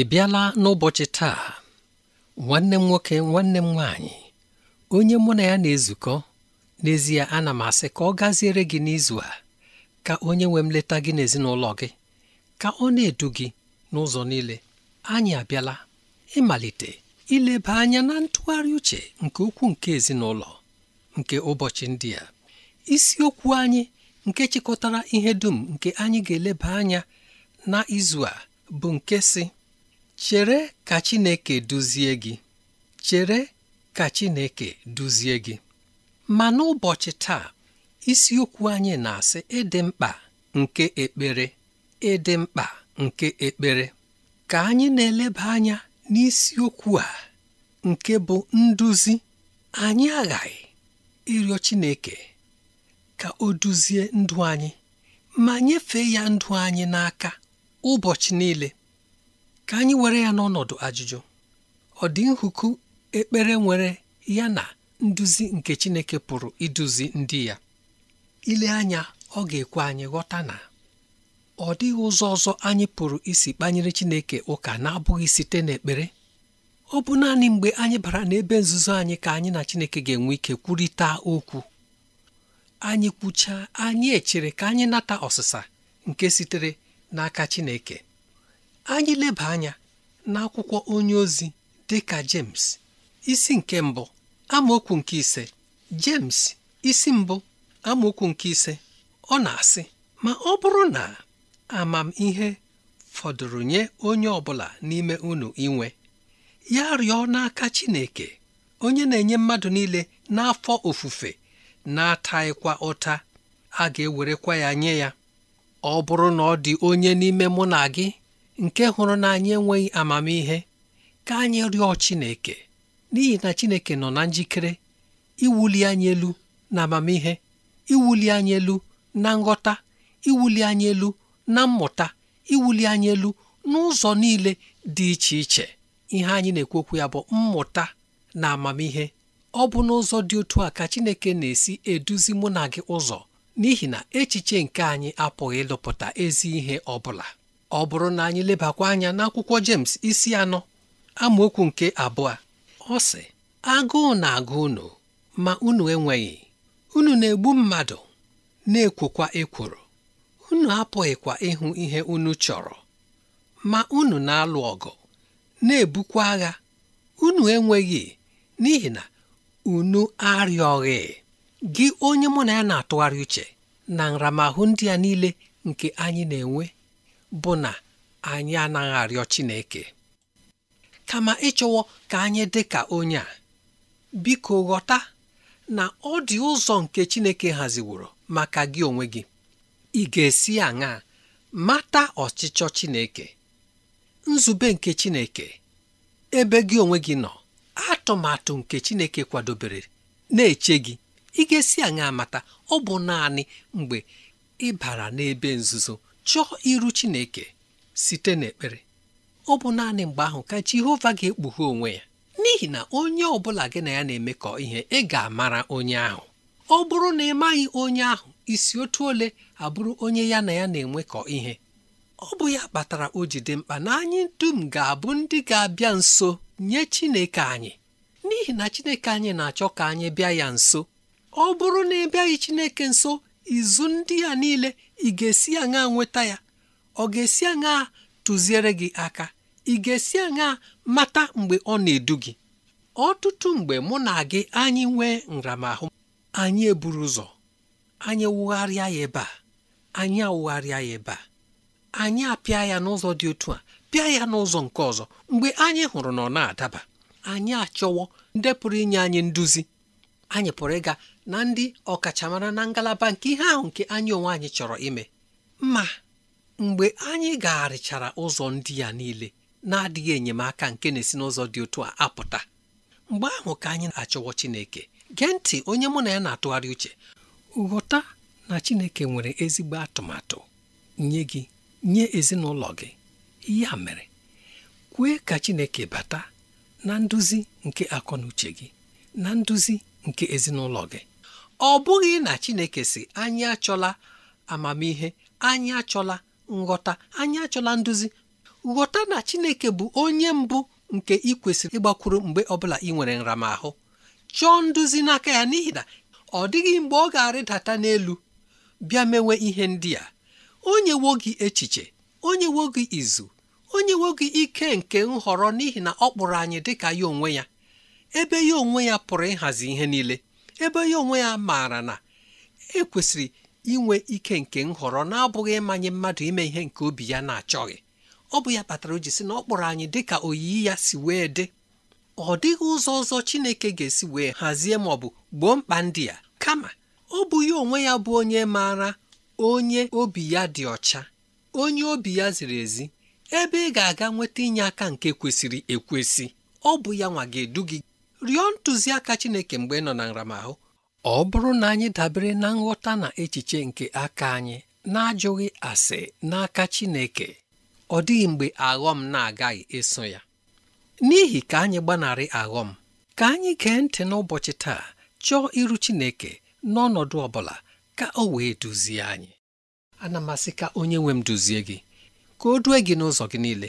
ị bịala n'ụbọchị taa nwanne m nwoke nwanne m nwaanyị onye mụ na ya na-ezukọ n'ezie ana m asị ka ọ gaziere gị n'izu a ka onye nwe m leta gị n'ezinụlọ gị ka ọ na-edu gị n'ụzọ niile anyị abịala ịmalite ileba anya na ntụgharị uche nke ukwu nke ezinụlọ nke ụbọchị ndị a isiokwu anyị nke chịkọtara ihe dum nke anyị ga-eleba anya na izu a bụ nke si chere ka Chineke duzie gị chere ka Chineke duzie gị ma n'ụbọchị taa isiokwu anyị na-asị ịdị mkpa nke ekpere ịdị mkpa nke ekpere ka anyị na-eleba anya n'isiokwu a nke bụ nduzi anyị aghaghị ịrịọ Chineke ka o duzie ndụ anyị ma nyefee ya ndụ anyị n'aka ụbọchị niile ka anyị were ya n'ọnọdụ ajụjụ ọ dị nhuku ekpere nwere ya na nduzi nke Chineke pụrụ iduzi ndị ya ile anya ọ ga-ekwe anyị ghọta na ọ dịghị ụzọ ọzọ anyị pụrụ isi kpanyere Chineke ụka na-abụghị site n'ekpere ọ bụ naanị mgbe anyị bara n'ebe nzuzo anyị ka anyị na Chineke ga-enwe ike kwurịta okwu anyị kwuchaa anyị echere ka anyị nata ọsịsa nke sitere n'aka Chineke anyị leba anya n'akwụkwọ onye ozi dịka James isi nke mbụ amaokwu nke ise James isi mbụ amaokwu nke ise ọ na-asị ma ọ bụrụ na amamihe fọdụrụ nye onye ọbụla n'ime unu inwe ya rịọ n'aka Chineke onye na-enye mmadụ niile n'afọ ofufe na-ataghịkwa ụta a ga-ewerekwa ya nye ya ọ bụrụ na ọ dị onye n'ime mụ na gị nke hụrụ na anyị enweghị amamihe ka anyị rịọ Chineke n'ihi na Chineke nọ na njikere iwuli anyị elu na amamihe iwuli anyị elu na nghọta iwuli anyị elu na mmụta iwuli anyị elu n'ụzọ niile dị iche iche ihe anyị na-ekwekwu ya bụ mmụta na amamihe ọ bụ n'ụzọ dị otu a ka Chineke na-esi eduzi mụ na gị ụzọ n'ihi na echiche nke anyị apụghị ịlụpụta ezi ihe ọ bụla ọ bụrụ na anyị lebakwa anya n'akwụkwọ James isi anọ amaokwu nke abụọ ọ sị agụụ na-agụ unu ma unu enweghị unu na-egbu mmadụ na-ekwokwa ekworo unu apụghịkwa ịhụ ihe unu chọrọ ma unu na-alụ ọgụ na-ebukwa agha unu enweghị n'ihi na unu arịọghị gị onye mụ na ya na-atụgharị uche na nramahụ ndị a niile nke anyị na-enwe bụ na anyị anaghị arịọ Chineke kama ịchọwo ka anyị dị ka onye a biko ghọta na ọ dị ụzọ nke Chineke haziworo maka gị onwe gị ị ga-esi aṅaa mata ọchịchọ Chineke nzube nke Chineke ebe gị onwe gị nọ atụmatụ nke Chineke kwadobere na-eche gị ị ga-esi aṅaa mata ọ bụ naanị mgbe ị bara n'ebe nzuzo chọọ iru Chineke site n'ekpere ọ bụ naanị mgbe ahụ ka Jehova ga-ekpughe onwe ya n'ihi na onye ọbụla gị na ya na-emekọ ihe ị ga-amara onye ahụ ọ bụrụ na ị maghị onye ahụ isi otu ole abụrụ onye ya na ya na-enwekọ ihe ọ bụ ya kpatara o ji dị mkpa na anyị dum ga-abụ ndị ga-abịa nso nye Chineke anyị n'ihi na Chineke anyị na-achọ ka anyị bịa ya nso ọ bụrụ na ị bịaghị Chineke nso izu ndị ya niile ị ga-esi aṅa nweta ya ọ ga-esi aṅa tụziere gị aka ị ga-esi aṅa mata mgbe ọ na-edu gị ọtụtụ mgbe mụ na gị anyị nwee nramahụ anyị eburu ụzọ anyị wụgharịa ya ebe a anyị awụgharịa ya ebe a anyị apịa ya n'ụzọ dị otu a pịa ya n'ụzọ nke ọzọ mgbe anyị hụrụ na ọ na-adaba anyị achọwo ndepụrụ inye anyị nduzi anyị pụrụ ịga na ndị ọkachamara na ngalaba nke ihe ahụ nke anyị onwe anyị chọrọ ime ma mgbe anyị gagharịchara ụzọ ndị ya niile na-adịghị enyemaka nke na-esi n'ụzọ dị otu a apụta mgbe ahụ ka anyị na-achọwọ Chineke gee ntị onye mụ na ya na-atụgharị uche ghọta na Chineke nwere ezigbo atụmatụ nye gị nye ezinụlọ gị ya mere kwee ka Chineke bata na nduzi nke akọ na uche gị na nduzi nke ezinụlọ gị ọ bụghị na Chineke si anyị achọla amamihe anyị achọla nghọta anyị achọla nduzi nghọta na Chineke bụ onye mbụ nke ị kwesịrị ịgbakwuru mgbe ọbụla ị nwere nramahụ chọọ nduzi n'aka ya n'ihi na ọ dịghị mgbe ọ ga-arịdata n'elu bịa mewe ihe ndị a Onye nyewo gị echiche onye nyewo gị izu onye nyewo gị ike nke nhọrọ n'ihi na ọ kpụrụ anyị dịka ya onwe ya ebe ya onwe ya pụrụ ịhazi ihe niile ebe ya onwe ya maara na ekwesịrị inwe ike nke nhọrọ na-abụghị ịmanye mmadụ ime ihe nke obi ya na-achọghị ọ bụ ya kpatara o ji sị na ọ kpọrọ anyị dị ka oyiyi ya si wee dị ọ dịghị ụzọ ọzọ Chineke ga-esi wee hazie ma ọ bụ gboo mkpa ndị ya kama ọ bụ ya onwe ya bụ onye maara onye obi ya dị ọcha onye obi ya ziri ezi ebe ị ga-aga nweta inye aka nke kwesịrị ekwesị ọ bụ ya nwa ga-edu gị rịọ ntụziaka Chineke mgbe ị nọ na nramahụ ọ bụrụ na anyị dabere na nghọta na echiche nke aka anyị na-ajụghị ase n'aka Chineke ọ dịghị mgbe aghọm na-agaghị eso ya n'ihi ka anyị gbanarị aghọm ka anyị gee ntị n'ụbọchị taa chọọ iru Chineke n'ọnọdụ ọ bụla ka o wee duzie anyị ana m asị ka onye nwe m duzie gị ka o due gị n'ụzọ gị niile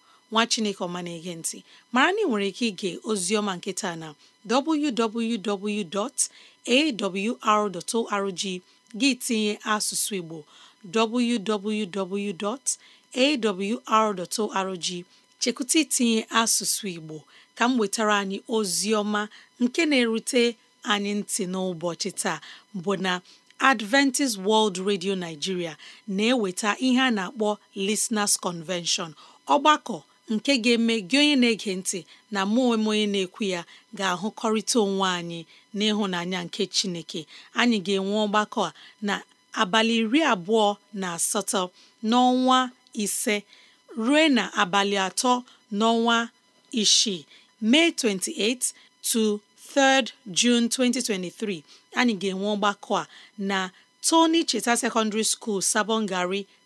nwa chineke ọma na-ege ntị mara na ị nwere ike ige oziọma nketa na www.awr.org gị tinye asụsụ igbo www.awr.org chekwụta itinye asụsụ igbo ka m wetara anyị oziọma nke na-erute anyị ntị n'ụbọchị taa bụ na Adventist World Radio Nigeria na-eweta ihe a na-akpọ Listeners Convention ọgbakọ nke ga-eme gị onye na-ege ntị na mụ onwe m onye na-ekwu ya ga-ahụkọrịta onwe anyị n'ịhụnanya nke Chineke anyị ga-enwe ọgbakọ a na abalị iri abụọ na asatọ n'ọnwa ise ruo na abalị atọ n'ọnwa isii mee 28 to 3 Jun 2023 anyị ga-enwe ọgbakọ a na Tony Cheta Secondary School Sabon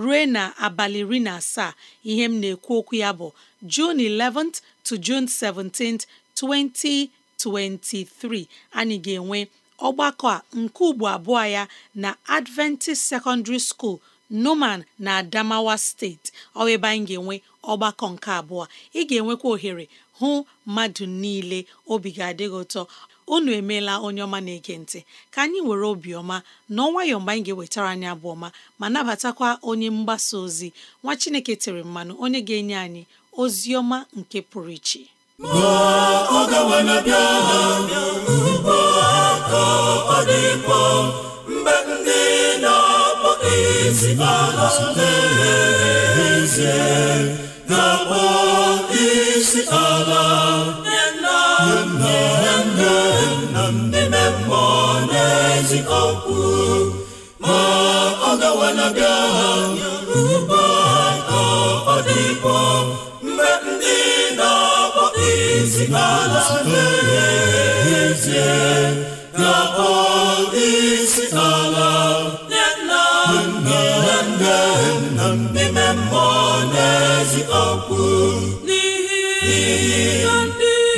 ruo na abalị iri na asaa ihe m na-ekwu okwu ya bụ June 11th to June 17th 2023 anyị ga-enwe ọgbakọ a nke ugbo abụọ ya na Adventist Secondary School noman na Adamawa steeti ọ ebe anyị ga-enwe ọgbakọ nke abụọ ị ga-enwekwa ohere hụ mmadụ niile obi ga adịghị ụtọ unu emeela onye ọma na-ege ntị ka anyị were obiọma na ọnwayọ mgbe anyị ga-ewetara anyị abụ ọma ma nabatakwa onye mgbasa ozi nwa Chineke tere mmanụ onye ga-enye anyị ozi ọma nke pụrụ iche mmụọ na-ezi ma ọ gawala bịa ha ugbu a ka ọ dịkwa mgbe ndị na-akpọ isi ala n'ezie na-akpọ isi ala na n'ihi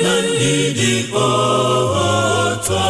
na ndị dị otu a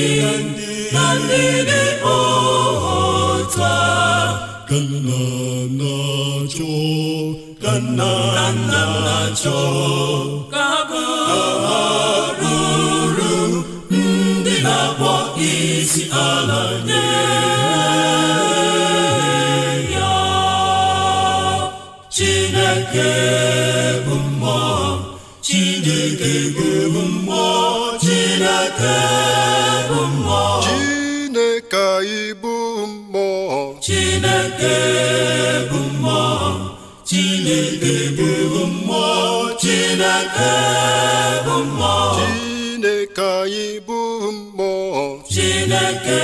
na ndị dị ọta ka bụ mmụọ Chineke anyị bụ mmụọ Chineke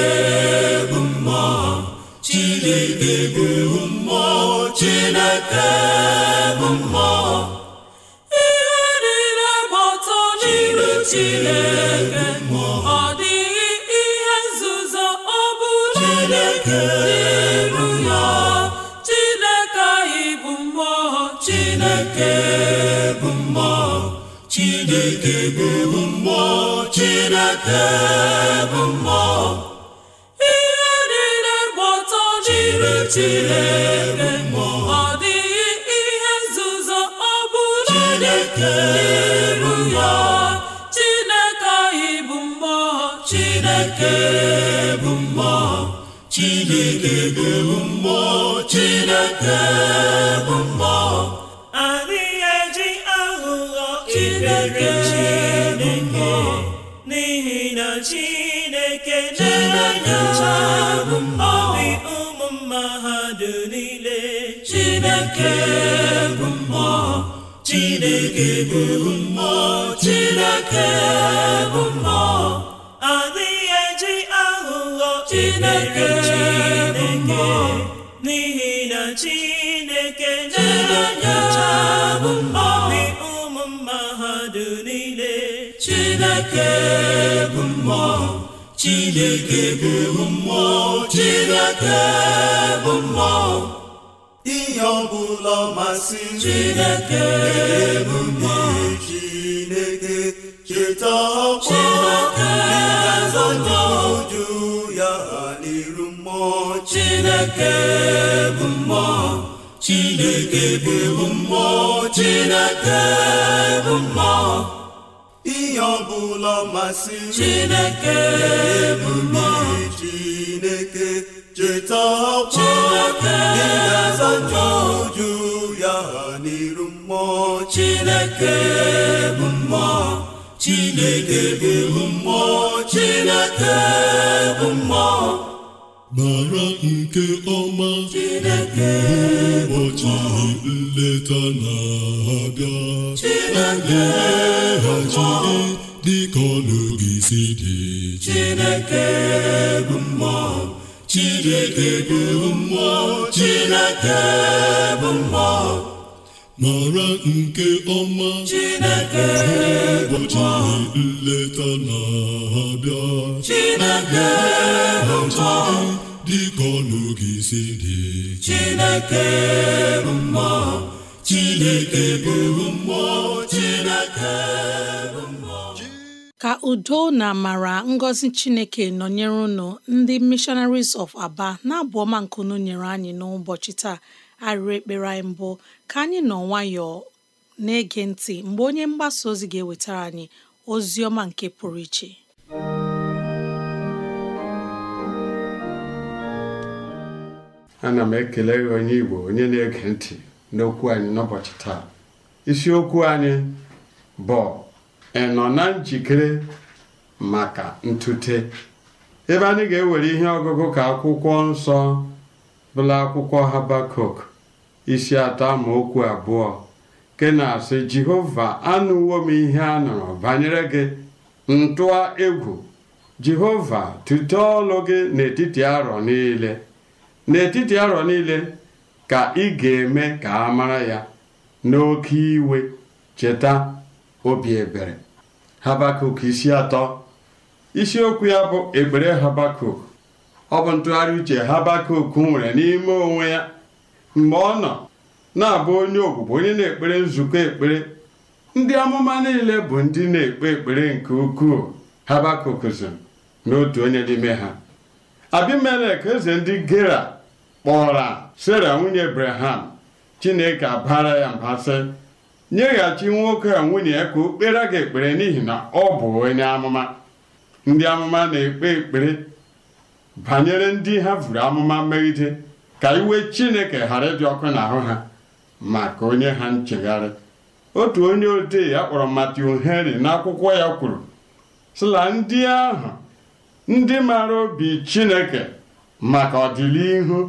bụ mmụọ Chineke bụ mmụọ Chineke bụ mmụọ ihe niile gbọtọ n'iru Chineke Ebe bụ mmụọ Chineke bụ mmụọ ihe niile gba ọtọ n'ime Chineke ọ dịghị ihe nzuzo ọ bụla Chineke bụ ya Chineke anyị bụ mmụọ Chineke bụ mmụọ Chineke bụ mmụọ Chineke bụ mmụọ chineke bụ mmụọ chineke bụ mmụọ adịghị eji aghụghọ chineke chineke n'ihi na chineke na-enye obi ụmụ mmadụ niile chineke bụ mmụọ chineke bụ mmụọ chineke bụ mmụọ ihe ọbụla masị chineke bụ mmụọ chineke cheta ọkwa ịgazọnyeụju ya n'iru mmụọ chineke bụ mmụọ chineke bụ mmụọ chineke bụ mmụọ ihe ọbụla masị Chineke bụ Chineke cheta ọkwa ị ga-aza ya n'iru mmụọ Chineke bụ mmụọ Chineke bụ mmụọ Chineke bụ mmụọ mara nke ọma ụbọchị nleta na-abịa a ga dịka ọnụ gị si dị Chineke bụ mmụọ Chineke bụ mmụọ mara nke ọma Chineke ụbọchị nleta na-abịa Chineke bụ mma dịka ọnụ gị si dị Chineke Chineke Chineke ka udo na amara ngọzi chineke nọnyere unu ndị missionaries of aba na-abụ ọma nkunu nyere anyị n'ụbọchị taa arịrị ekpere anyị mbụ ka anyị nọ nwayọọ na-ege ntị mgbe onye mgbasa ozi ga-ewetara anyị ozi ọma nke pụrụ iche ana m ekele onye Igbo onye na-ege ntị n'okwu anyị n'ụbọchị taa isiokwu anyị bụ ị nọ na njikere maka ntute ebe anyị ga-ewere ihe ọgụgụ ka akwụkwọ nsọ bụla akwụkwọ Habakuk isi atọ okwu abụọ ke na-asị jehova anụwo m ihe a nụrụ banyere gị ntụa egwu jehova tute ọlụ gị n'etiti arọ niile n'etiti arọ niile ka ị ga-eme ka a mara ya n'oke iwe cheta obi ebere habakuk isi atọ isiokwu ya bụ ekpere habakuk ọ bụ ntụgharị uche habakuk nwere n'ime onwe ya mgbe ọ nọ na-abụ onye ogbugbo onye na-ekpere nzukọ ekpere ndị amụma niile bụ ndị na-ekpe ekpere nke ukwuu Habakuk so n'otu onye n'ime ha Abimelek eze ndị Gera kpọra Sera nwunye Abraham Chineke abara ya mba sị nyeghachi nwoke a nwunye ya ka o kpere gị ekpere n'ihi na ọ bụ onye amụma ndị amụma na-ekpe ekpere banyere ndị ha vụrụ amụma megide ka iwe chineke ghara ịdị ọkụ n'ahụ ha maka onye ha nchegharị otu onye odee ya kpọrọ Matthew Henry n'akwụkwọ ya kwuru sila ndị ahụ ndị mara obi chineke maka ọdịnihu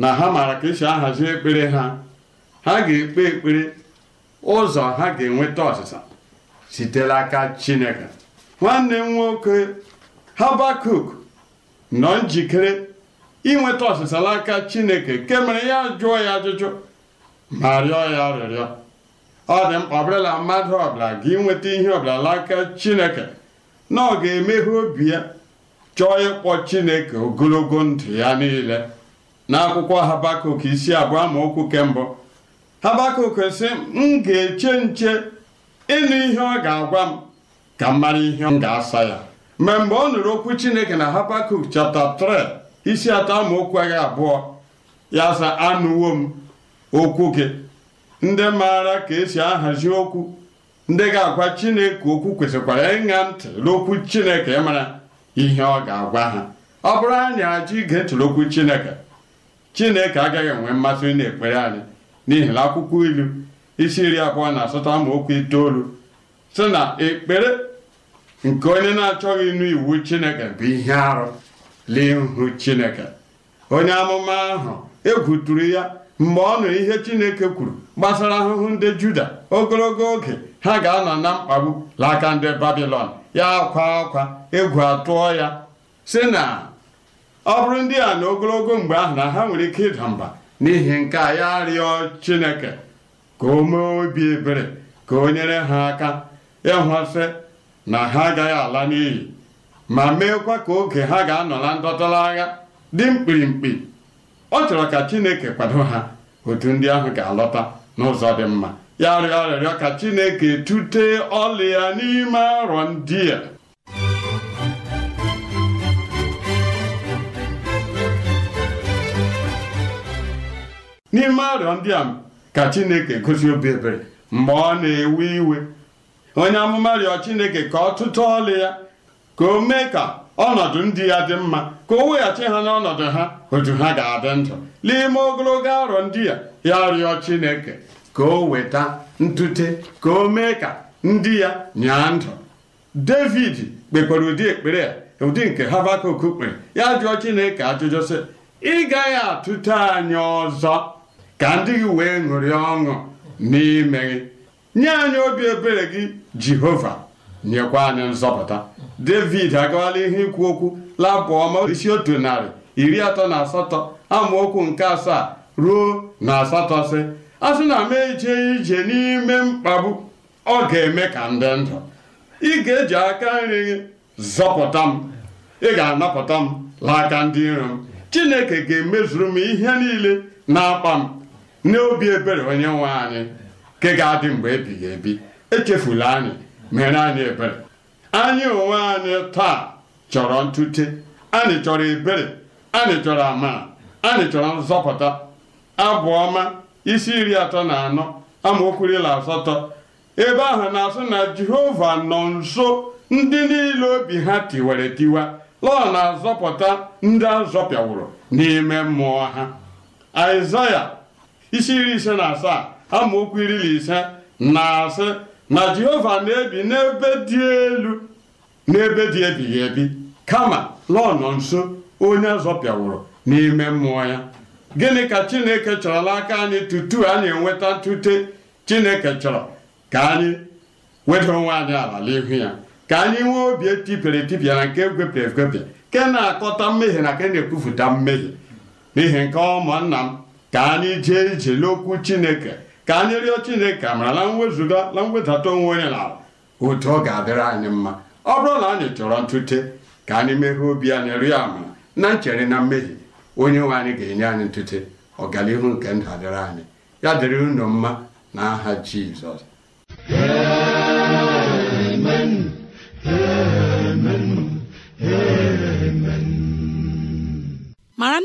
na ha maara ka esi ahazi ekpere ha ha ga-ekpe ekpere ụzọ ha ga-enweta ọsịsa sitere aka chineke nwanne m nwoke Habakuk nọ njikere inweta ọsịsa n'aka chineke nke mere ya jụọ ya ajụjụ ma rịọ ya rịrịọ ọ dị mkpa ọbụla mmadụ ọbụla ga inweta ihe ọbụla n'aka chineke na ọ ga-emeghe obi ya chọọ ịkpọ chineke ogologo ndụ ya niile n'akwụkwọ habakuk isi abụọ amaokwu okwu kembụ habakuk sị m ga-eche nche ịnụ ihe ọ ga-agwa m ka m mara ihe m ga-asa ya ma mgbe ọ nụrụ okwu chineke na habakuk chapta 3 isi atọ amaokwu agha abụọ ya sa anụwo m okwu gị ndị maara ka esi ahazi okwu ndị ga-agwa chineke okwu kwesịkwara ịṅa ntị n'okwu chineke ịmara ihe ọ ga-agwa ha ọ bụrụ anyị ajụ ige ntị n'okwu chineke chineke agaghị enwe mmasị ekpere anyị n'ihi na akwụkwọ ilu isi iri abụọ na asatọ amaokwu itoolu sị na ekpere nke onye na-achọghị ịnụ iwu chineke bụ ihe arụ l'ihu chineke onye amụma ahụ egwuturu ya mgbe ọ ihe chineke kwuru gbasara ahụhụ ndị juda ogologo oge ha ga-anọ na mkpagbu n'aka ndị babilon ya akwa akwa egwu atụọ ya sị na ọ bụrụ ndị a na ogologo mgbe ahụ na ha nwere ike ịda mba n'ihi nke a ya rịọ chineke ka o obi ebere ka o nyere ha aka ịhụsị na ha agaghị ala n'iyi ma meekwa ka oge ha ga-anọ na ndọtọrọ agha dị mkpirimkpi ọ chọrọ ka chineke kwado ha otu ndị ahụ ga-alọta n'ụzọ dị mma ya rịọ arịrịọ ka chineke tute ọlị ya n'ime arọ ndị a n'ime arịọ ndị a ka chineke gosi obi ebere mgbe ọ na-ewe iwe onye amụma rịọ chineke ka ọ tụtụ ọlị ya ka o mee ka ọnọdụ ndị ya dị mma ka o weghachi ha n'ọnọdụ ha otu ha ga-adị ndụ n'ime ogologo arọ ndị ya ya rịọ Chineke ka o weta ntute ka o mee ka ndị ya nyaa ndụ David kpekwara ụdị ekpere ya ụdị nke Habakuk kpere ya jụọ Chineke ajụjụ sị ị gaghị atụte anyị ọzọ ka ndị gị wee ṅụrịa ọṅụ n'ime gị nye anyị obi ebere gị Jehova nyekwa anyị nzọpụta david agawala ihe ikwu okwu labụ ọma isi otu narị iri atọ na asatọ amaokwu nke asaa ruo na asatọ sị a sị na m ejee ije n'ime mkpagbu ọ ga-eme ka ndị ndụ ị ga-eji aka nri gị zọpụta m ị ga-anapụta m laaka ndị iro m chineke ga-emezuru m ihe niile na-akpa m n'obi ebere onye nwe anyị nke ga-adị mgbe ebighị ebi echefula anyị mere anyị ebere anyị onwe anyị taa chọrọ ntute anyị chọrọ ebere anyị chọrọ ama anyị chọrọ nzọpụta Abụọma isi iri atọ na anọ amaokwu iri asatọ ebe ahụ na-asụ na jehova nọ nso ndị niile obi ha tiwere tiwa lọ na-azọpụta ndị azọpịawụrụ n'ime mmụọ ha aịzaya isi iri ise na asaa amaokwu iri na ise na-asị na jehova na-ebi n'ebe dị elu n'ebe dị ebighị ebi kama lọnọ nso onye zọpịawụrụ n'ime mmụọ ya gịnị ka chineke chọrọla aka anyị tutu anyị enweta ntute chineke chọrọ ka anyị weda onwe anyị ala n'ihu ya ka anyị nwee obi etipịara etipịa na nke egwepịa egwepịa ke na-akọta mmehie na ke na-ekwupụta mmehie n'ihi nke ọmụnna m ka anyị jee ije n'okwu chineke ka anyị rịọ chineke amara na mwezuga na mwedata onwe onye n'ala otu ọ ga-adịrị anyị mma ọ bụrụ na anyị chọrọ ntute ka anyị meghe obi anyị rịọ amara na nchere na mmehie onye nwe anyị ga-enye anyị ntute ọganihu nke ndụ adịrị anyị ya dịrị unu mma n'aha Jizọs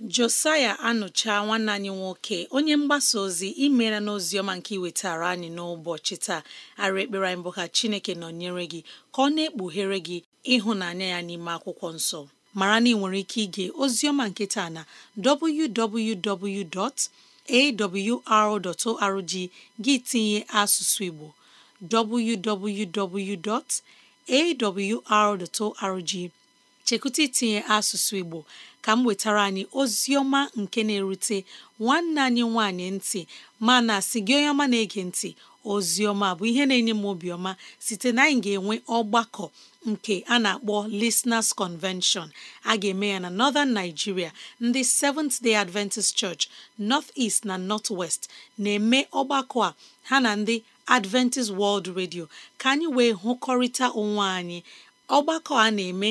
josaya anụcha nwanne anyị nwoke onye mgbasa ozi imeela n'oziọma nke iwetara anyị n'ụbọchị taa ara ekpere anyị bụ ka chineke nọnyere gị ka ọ na-ekpughere gị ịhụnanya ya n'ime akwụkwọ nsọ mara na ị nwere ike ige ozioma nke taa na www.awr.org gị tinye asụsụ igbo www.awr.org chekwụta itinye asụsụ Igbo ka m wetara anyị ozi ọma nke na-erute nwanne anyị nwanyị ntị mana si gị onye ọma na-ege ntị ozi ọma bụ ihe na-enye m obiọma site na anyị ga-enwe ọgbakọ nke a na-akpọ Listeners Convention a ga-eme ya na Northern Nigeria ndị Seventh Day Adventist Church North East na North West na-eme ọgbakọ a ha na ndị Adventist World Radio ka anyị wee hụkọrịta onwe anyị ọgbakọ a na-eme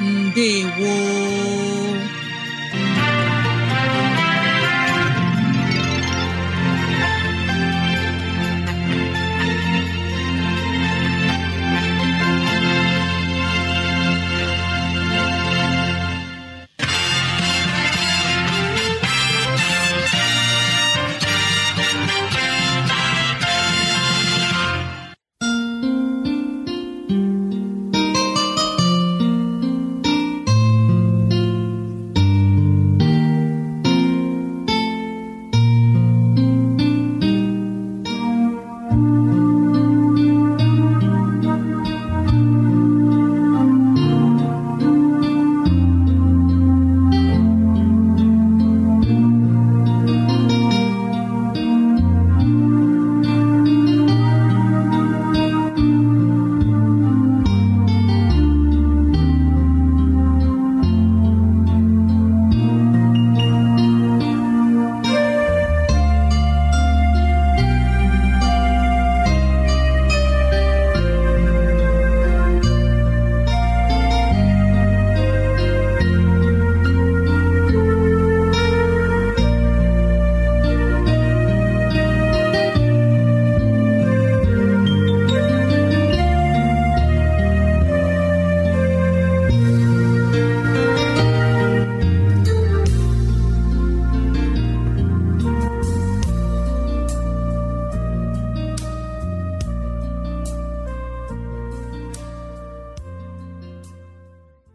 ndewo